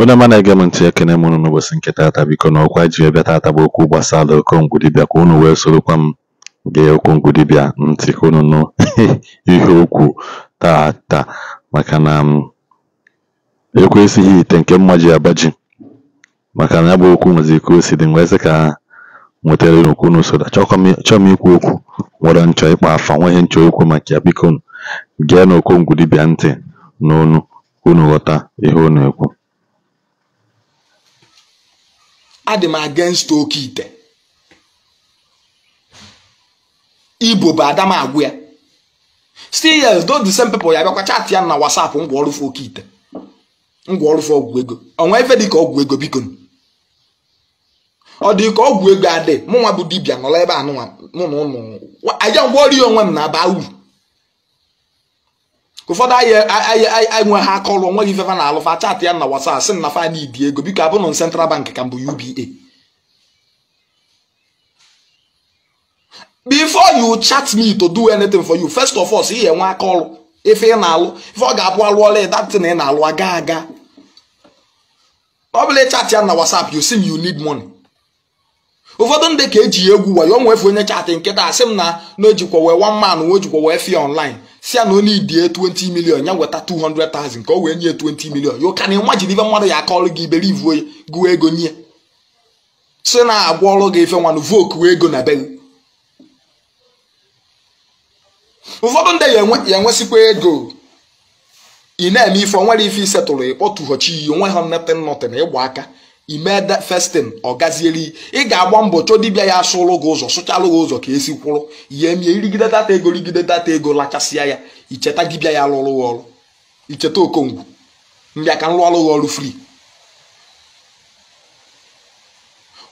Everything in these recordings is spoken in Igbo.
Onye ama na-ege m ntị, ekene m unu n'ụbọchị nke taata. Biko na ọkwa ji bịa taata bụ okwu gbasara okongwu dibịa ka unu wee sorokwa m gee okongwu ntị ka unu nụ ihe okwu taata maka na m ekwesịghị ite nke mma ji abaji maka na ya bụ okwu nwezi ike o si dị wee ka nwetara okwu n'usoro chọọ m ikwu okwu nwere nchọ ịkpa afa nwa ihe nchọ okwu maka ya biko gee na okongwu dibịa ntị n'onu unu ghọta ihe na ekwu adị m against oke ite igbo bụ adam agwụ ya still yes those the same people ya bịakwa ya na whatsapp ngwa oke ite ngwa ọgwụego ọgwụ ego ife dịka ọgwụ ego biko ọ dị ka ọgwụ ego adị mụnwa bụ dibia nọrọ ebe a mụ na ụmụ aja ngwa ọrụ onwe m na-aba uru ka ụfọdụ enwe ha akọlụ gị ifefa na alụfa chatị ya na WhatsApp sị na fa need ego biko abụrụ central bank ka mbụ UBA before you chat me to do anything for you first of all ị enwe aka ife ị na-alụ ife ọ ga-abụ alụ ọla na ị na-alụ aga aga ọ chat ya na WhatsApp you see me you need money ụfọdụ ndị ka eji egwu wayo onwefe onye chatị nkịta asị m na na ojikwa wee one man wee ojikwa wee fee online si ya na onye idie 20 million ya nweta 200,000 ka o wee nye 20 million yo can imagine ife mmadụ ya akọọlụ gị iberivu oyi gụọ ego nye si na-agwa ọrụ gị ife nwanụ voku ego na be ụfọdụ ndị ya enwesịkwa ego ị na-eme ife onwere ife isetụrụ ịkpọtụghochi iyi onwe ha nnete nnọtị na ịgba aka imede festin ọ ị ga-agba mbọ chọọ dibịa ya asụlụ gị ụzọ sụchalụ gị ụzọ ka esi kwụrụ ihe mie irigide data ego rigide data ego lachasịa ya icheta dibịa ya lụrụ gị ọrụ icheta okongwu mbịa ka m ọrụ gị ọrụ fri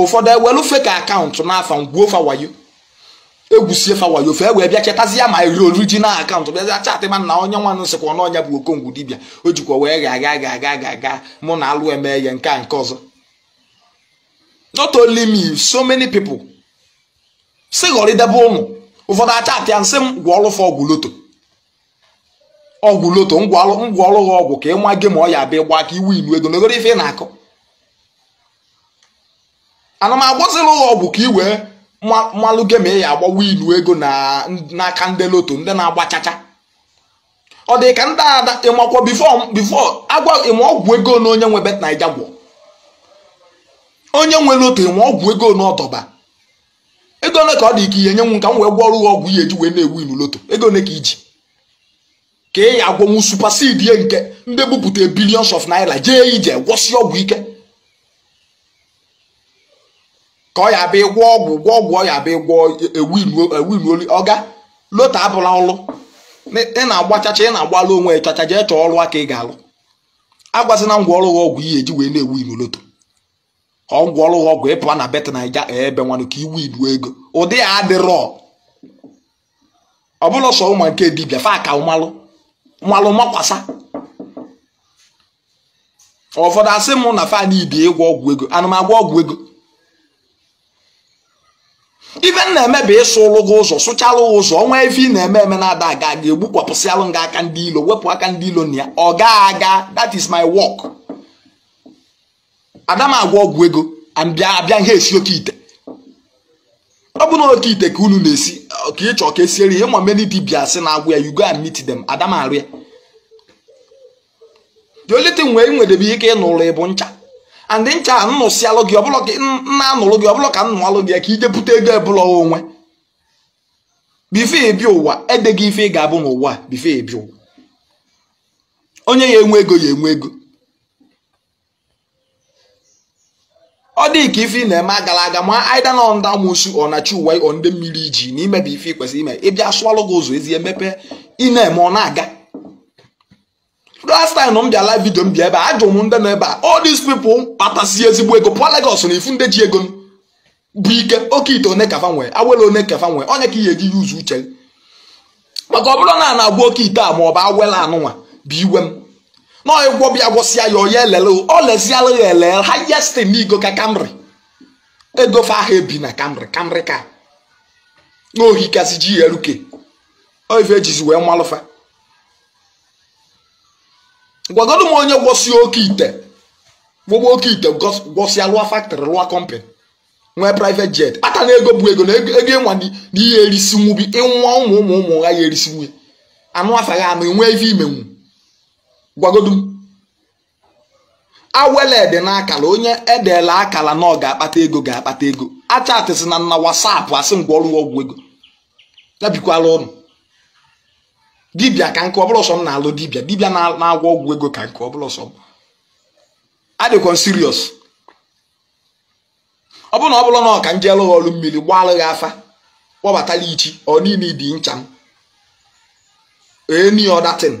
ụfọdụ ewelufe ka akaụntụ n'afa ngwuo fawayo egwusie fawayo fe wee bịa chetazia ma iri orijinal akaụntụ bịazi ma na onye nwanụ sịkwa n'ọnya bụ okongwu dibịa o jikwa wee ga aga aga aga aga aga mụ na alụ eme ya nke a nke ọzọ not only me so many people si ghọrịdebe ụnụ ụfọdụ acha apịa nsị m gwọọlụfa ọgwụ loto ọgwụ loto ngwaọrụ ha ọgwụ ka ịma gị ma ọ ya abịa ịgba ka iwu ilu ego n'ogoro ife ị na akụ ana m agbazila ụlọ ọgwụ ka i wee mmalụ gị ma ị ya agbawa ilu ego n'aka ndị loto ndị na-agba chacha ọ dị ka ndị ada ịmakwa bifo agwa ịma ọgwụ ego na onye nwe bet naija gwọ onye nwere okenye ma ọgwụ ego n'ọtọba ego ole ka ọ dị ike ihe nye ka m wee gwọrụ gị ọgwụ ihe eji wee na-ewu ilu loto ego ole ka iji ka ị ya agwọnwu supasidi ye nke ndị bupụta billions of naira jee ije gwọsị ọgwụ ike ka ọ ya bịa gwọ ọgwụ gwọ ọgwụ ọ ya bịa gwọ ewinoli ọga loto abụla ọlụ ị na-agba chacha ị na-agbalụ onwe chacha jee chọọ ọrụ aka ị ga-alụ agwazina ngwa ọrụ gị ọgwụ ihe eji wee na-ewu ilu loto ọgwụ ọlụghị ọgwụ ịpụa na bet naija e, ebe nwanụ ka iwu ibu ego ụdị a adịrọ ọ bụla sọ ụmụ nke dibịa fa ka mmalụ mmalụ makwasa ụfọdụ asị m na fan ibi ịgwọ ọgwụ ego anụmagwọ ọgwụ ego ife na-eme bụ ịsụ ụlụgụ ụzọ sụchalụ ụzọ ọnwa ife ị na-eme eme na-ada aga ga-egbukwapụsịalụ nga aka ndị ilo wepụ aka ndị ilo na ya ọ ga aga that is my work. ada agwa ọgwụ ego abịa abịa ihe esi oke ite ọ bụ na oke ite ka unu na-esi ka ị ka esiere ihe ma many dibia sị na agwụ ya you go and meet them ada m arụ ya the only thing ike ịnụrụ ịbụ ncha and ncha a nnụsịalụ gị ọbụla nna anụrụ gị ọbụla ka nnụalụ gị ka ijepụta ego ebụla onwe bife ebi ụwa edeghị ife ị ga-abụ n'ụwa bife ebi ụwa onye ya enwe ego ya enwe ego ọ dị ka ife ị na-eme agala aga ma aida na ndị amụsu ọnachi uwe ọ ndị mmiri iji na imebi ife ikwesịrị ime ịbịa sụwalụ gị ụzọ ezi mepe ị na-eme ọ na-aga last time m bịa live video m bịa ebe a ajụrụ m ndị nọ ebe a all these people patasi ezigbo ego pụọ legos na ifu ndị ji ego bụ ike oke ite one kafa nwee awele one kafa nwee onye ka ị ga-eji yuzu uche maka ọ bụrụ na a na-agwa oke ite a ma ọ bụ awela anụnwa bụ iwe m na ọgwọ bịa gwọsịa ya onye elele ọ leziala ya elele highest n'igo ka kamri egofe ahụ ebi na kamri kamri ka n'ohi kasị oh, ji ya eruke oife ejizi wee malụfa gwagodo m onye gwọsịa oke ite gwọgba oke ite gwọsịa lụa factory lụa company nwee private jet kpata na ego bụ ego na ego ịnwa na ihe erisi nwubi ịnwa ụmụ ụmụ ụmụ ha ya erisi nwunye anụ gha anụ enwee ife imenwu gwagodum gwagodu awelede n'akala onye edeela akala na ọ ga-akpata ego ga-akpata ego achatị sị na na wasapụ asị ngwa ọrụ ọgwụ ego yabikwala ọnụ dibịa ka nke ọbụla ọsọ m na-alụ dibịa dibịa na-agwọ ọgwụ ego ka nke ọbụla ọsọ m adịkwa siriọs ọ bụrụ na ọ bụrụ na ọ ka m jee lụghị ọrụ mmiri gbalụghị afa kpọbatala ichi ọ niile dị ncha m eni ọ datin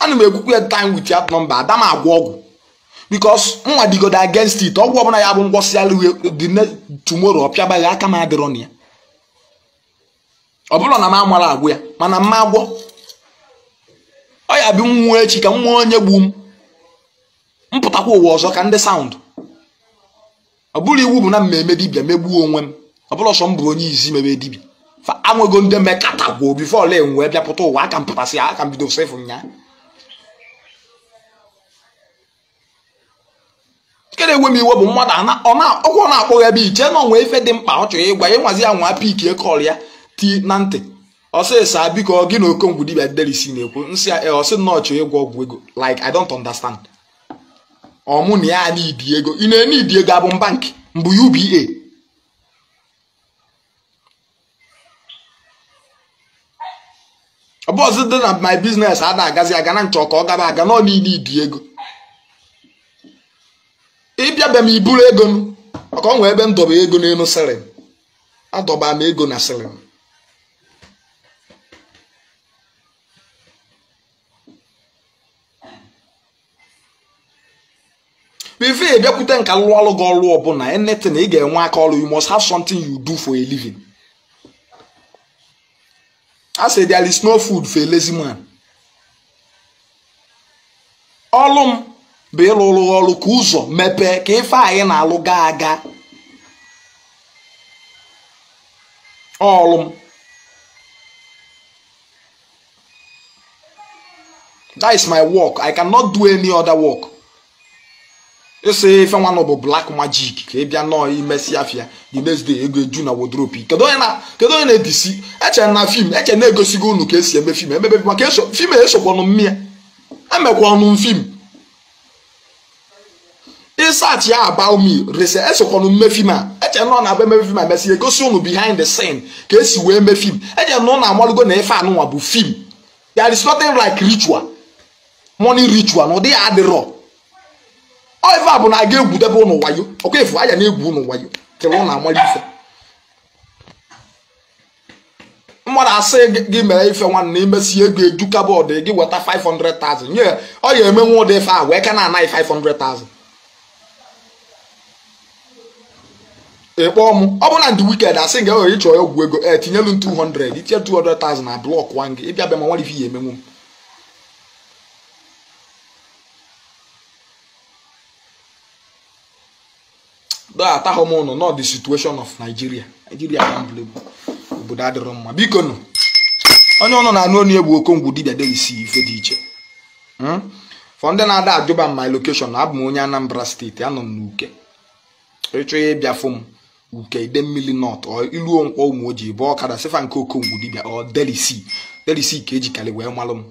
ana m egwukwu ya time with that number ada m agwa ọgwụ because nwa digodo agenst it ọgwụ ọbụla ya bụ ngwọsịala uhe tumoro ọpịabaghị aka m adịrọ na ya ọ bụrụ na m amara agwụ ya mana mma agwọ ọ ya bụ nwụọ echi ka m nwee onye gbu m mpụtakwa ụwa ọzọ ka ndị saụndụ ọ bụrụ iwu bụ na mmemme dibia megbuo onwe m ọ bụrụ ọsọ m bụ onye izi mebe dibia fa anwego ndị mmekọta gwoo bifo ole enwee bịapụta ụwa aka m pụtasị aka m bido sefụ nyaa na-enwe m iwe bụ mmadụ ọkwa na-akpọghị ebe iche na onwe ife dị mkpa ọ chọrọ ịgwa ịnwazi ya nwa pikie ya ti na ntị ọsịsa biko gị na okongwu dibia delisi na-ekwu nsị ọsị nnọọ chọrọ ịgwọ ọgwụ ego like I don't understand ọmụ na ya n'idi ego ị na-ene idi ego abụ bankị mbụ UBA e. ọ ọzọ dị na my business a na-agazi aga na nchọ ka ọ gaba aga nọ n'ile idi ego ịbịa bịa m i ego m maka ọ nwee ebe m dọba ego n'elu sịrịm adọba m ego na bụ before ị bịakwute nka lụọlụ gị ọrụ ọbụla na ị ga-enwe aka ọrụ you must have something you do for a living a sị there is no food for a lazy man ọlụ bụ ịlụrụ ọrụ ka ụzọ mepee ka ife anyị na-alụ gaa aga ọlụ m that is my work i cannot do any other work ịsị ife nwanụ bụ black magic ka ị bịa nọọ imesi afịa the next day ego eju na wodropi kedu onye na-edisi eche na fim eche na-egosigo unu ka esi eme fim emebe fim maka fim esokwanụ mmịa emekwa ọnụ fim research ya about me rese esokwanụ mme fim a eche nọ na-abụ eme fim a mesị egosi unu behind the scene ka esi wee mee fim eche nọ na amalụgo na ife anụnwa bụ film there is nothing like ritual money ritual na ụdị ya adịrọ oive a bụ na a ga-egwudebe ụnụ wayo ọkwa efu anya na-egwu ụnụ wayo kere ụnụ amara ife mmadụ asị gị mere ife nwanne imesi ego eju kabọọdụ gị weta 500,000 nye ọ ga-eme nwa ụdị ife a wee ka na-anaghị 500,000 ịkpọ m ọ bụrụ na ndị wiked asị nga ewere ịchọ ọgwụ ego e tinyelu m 200 itinye 200,000 na blọk wan gị ịbịa bịa ma nwere ife ihe emenwu m atahụ m ụnụ nọ the situation of Nigeria Nigeria obodo adịrọ mma biko nọ onye ọnụ na-anụ onu egbu okongwu dibia delisi ife dị iche hmm? fọ ndị na-ada ajụba m my location abụ m onye Anambra steeti anọ m n'uke ịchọ ya ịbịa fụ m nke ide mmiri nọt iluo nkwọ ụmụ ojii bụ ọkada sefa nke okongwu dibịa ọ delisi delisi ka ejikarị wee malụ m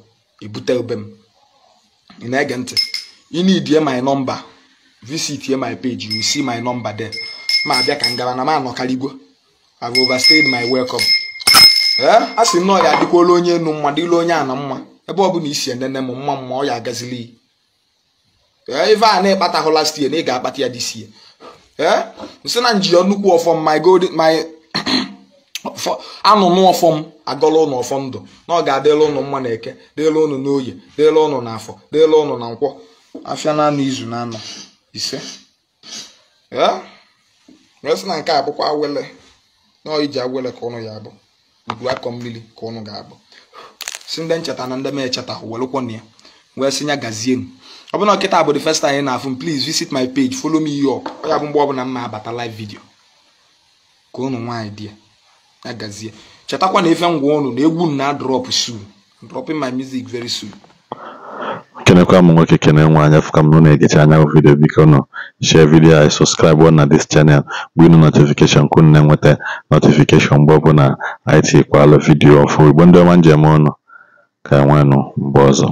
ebute ebe m ị na-ege ntị inidie my nọmba visit my page you see my number there ma abịa ka ngara na m igwe I've overstayed my welcome ee eh? a sị na ọ ya adịkwala onye enu mma dịla onye a na mma ebe ọ bụla isi enene m mma mma ọ ya agazili ee eh, ife a na-ekpatahụ last year na ị ga-akpata ya this year ee eh? nsị na njiri nnukwu ọfọm my golden my anụnụ ọfọm agọla ụnụ ọfọm ndụ na ọ ga-adịla ụnụ mma na eke dịla ụnụ n'oye dịla ụnụ na afọ dịla ụnụ na nkwọ afịa na anụ izu na anọ ise eh? ee sị na nke a bụkwa awele na ọ iji awele ka ụnụ ya abụ udu akọ mmiri ka ụnụ ga-abụ si ndị ncheta na ndị m echeta welụkwana ya wee sị ya gazienu ọ bụna nkịta bụ the first time na-afụ m please visit my page follow me here ọ ya bụ mgbe ọbụla m na-abata live video ka ụnụ nwaanyị dị ya gazie chetakwa na efe ngwa ụnụ na egwu m na drop soon dropping my music very soon kenekwa m nwoke kene nwa anya fụka m na-egecha anya bụ vidio biko nụ share vidio anyị sọskraịbụ na dis chanel bụ inu notifikeshon ka unu na-enweta notifikeshon mgbe ọbụla anyị tikwala vidio ọfụ igbo ndị ọma njem ụnụ ka enwenụ mgbe ọzọ